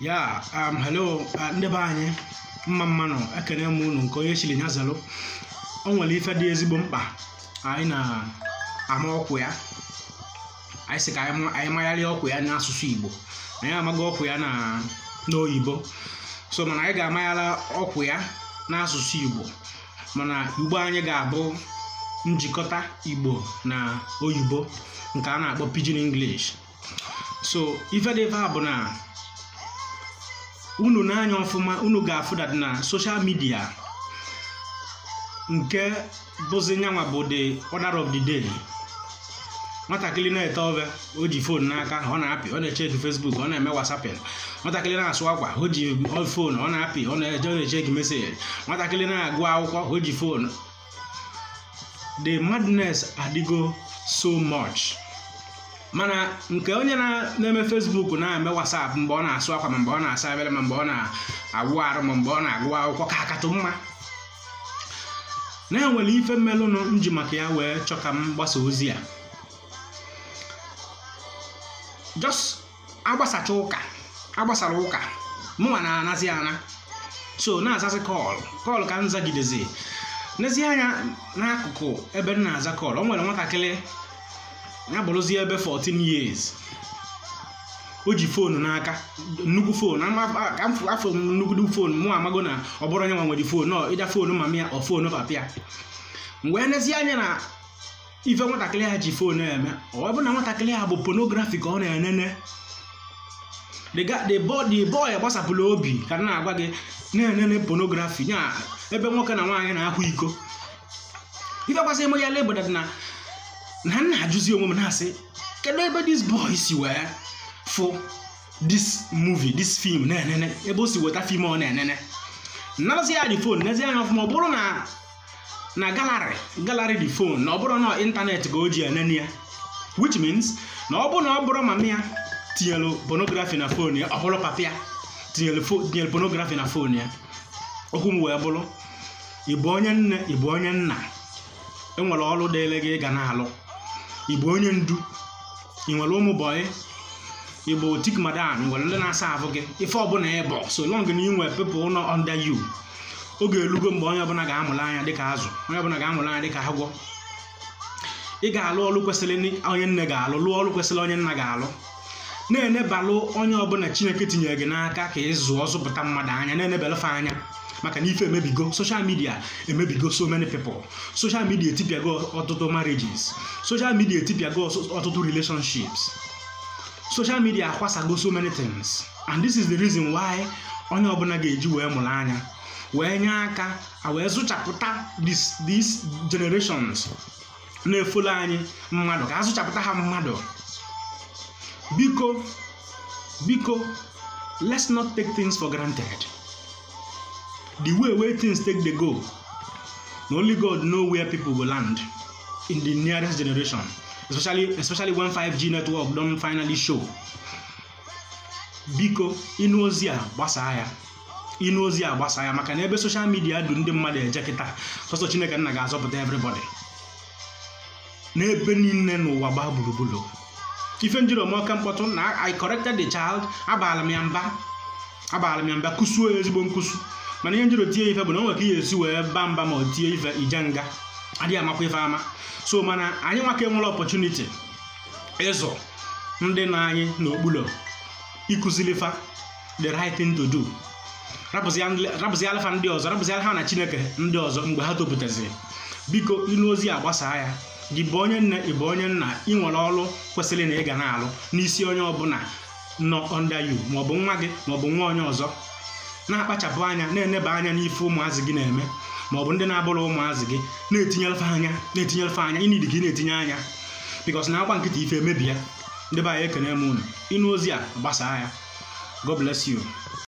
ya um hello uh, anyị mma mmanụ ekene m unu nke onye chiri nya zalụ o nwere ife dị ezigbo mkpa anyị na-ama ọkụ ya anyị sị ka anyị magharịa ọkụ ya n'asụsụ igbo anyị amaghị ọkụ ya na n'oyibo so mana anyị ga-amaghara ọkụ ya n'asụsụ igbo mana igbo anyị ga-abụ njikọta igbo na oyibo nke a na-akpọ pidgin english so ife dị ebe unu na ọfụma unu ga-afụdat na soshal midia nke bụzi nyanwa bụ the order of the day nwatakịrị na-ete ọbịa o ji fon n'aka ọ na-apị ọ na-echeki fesbuk ọ na-eme wasapịn nwatakịrị na-asụ akwa o ji fon ọ na-apị ọ na-echeki meseji nwatakịrị na-agụ akwụkwọ o ji fon the madness adịgo so much. mana nke onye na-eme fesbuk na-eme whatsapp mgbe ọ na-asụ akwa ma mgbe ọ na-asa abere ma mgbe ọ na-awụ arụ ma mgbe ọ na-agụ akwụkwọ ka akatụ mma na-enwere ife mmelụnụ ji maka ya wee chọ ka m gbasa ozi ya jos agbasacha ụka agbasara ụka mụnwa na-anazi ana so na azazi kọl kọl ka nzagidezi n'ezie anya n'akụkụ ebe m na-aza kọl o nwere nwatakịrị ya bụrụzie ebe 14 years o ji foonu n'aka nnukwu foonu afọ nnukwu fon mụ amago na ọ bụrụ onye nwa nwere fon nọ ịja foonu mama ya ọ foonu papa ya mgbe e anya na ife nwatakịrị ha ji fon eme ọ bụ na nwatakịrị ha bụ ponografi ka ọ na-enene the boy gbasapụla obi ka na-agwa gị na-enene ponografi nya ebe nwoke na nwaanyị na-akwa iko ife gbasara ime ya lebụdadị na na m na-ajụzi onwe m na-asị kedu ebe dis boy si wee fụ dis movie dis film na-enene ebe o si weta film ọ na-enene nazi ya fon nezi anya ọfụma ọ bụrụ na na galari galari dị fon na ọ bụrụ na ịntanetị ka o ji enene ya which means na ọ bụrụ na ọ bụrụ mama ya tinyelu pornography na fon ya ọ bụrụ papa ya tinyelu pornography na fon ya okwu m wee bụrụ ịbụ onye nne ịbụ onye nna enwere ọrụ dịịrị gị ịga na-alụ bụ onye ndu ị nwere ụmụ bọyị igbo tik madan nwere ndị na-asa ahụ gị ife ọbụla ịbọ so long na inwe pepụl ụlọ under you oge elugo mgbe onye ọbụla ga-amụrụ anya dịka azụ onye ọbụla ga-amụrụ anya dịka agwọ ị ga-alụ ọrụ kwesịrị onye nne ga-alụ lụọ ọrụ kwesịrị onye nna ga-alụ na-enebalụ onye ọbụla chineke tinyere gị n'aka ka ị zụọ zụpụta mmadụ anya na-enebalụfe anya maka na ife emebigo social media emebigo so many people social media etipịago ọtụtụ marriages social media etipịago ọtụtụ relationships social media akwasago so many things and this is the reason why onye ọbụla ga-eji wee mụrụ anya wee nye aka wee zụchapụta these generations na-efolo anyị mmadụ ka azụchapụta ha mmadụ biko biko let's not take things for granted the way where things take dey go only god know where people go land in the nearest generation especially especially when 5g network don finally show biko Inozia ozi Inozia gbasaa ya ịnụ ozi a gbasaa ya maka na ebe soshal midia du ndị mmadụ eje kịta sọsọ chineke nna ga-azọpụta everybody n'ebe niile n'ụwa gbaa gburugburu ife njiri omeọka mkpọtụ na i corrected the child abaala m ya mba abaala m ya mba kụsuo ezigbo nkụsu mana ihe njiri tie ife bụ na o nwere ka ihe esi wee ba mba ma ọ tie ife ije nga adịghị amakwa ife ama so mana anyị nwaka enwere ọpọchuniti ịzụ ndị na anyị n'okpuru ịkụziri fa the right thing to do rapụzi alfa ndị ọzọ rapụzi alfa na chineke ndị ọzọ mgbe ha topụtaziri biko ịnụ ozi a gbasaa ya gị bụ onye nne ị bụ onye nna ị nwere ọrụ kwesịrị na ị ga na-alụ n'isi onye ọbụla nọ ọnda yu maọbụ nwa gị maọbụ nwa onye ọzọ na-akpachapụ anya na-eneba anya n'ife ụmụazị gị na-eme ma ọ bụ ndị na-abụrụ ụmụazị gị na-etinyelfe anya na-etinyelfe anya ịnidi gị na-etinye anya bikos na akwa nkịta ife emebi ya ndị be anyị ekene m unu ịnụ ozi a gbasaa ya God bless you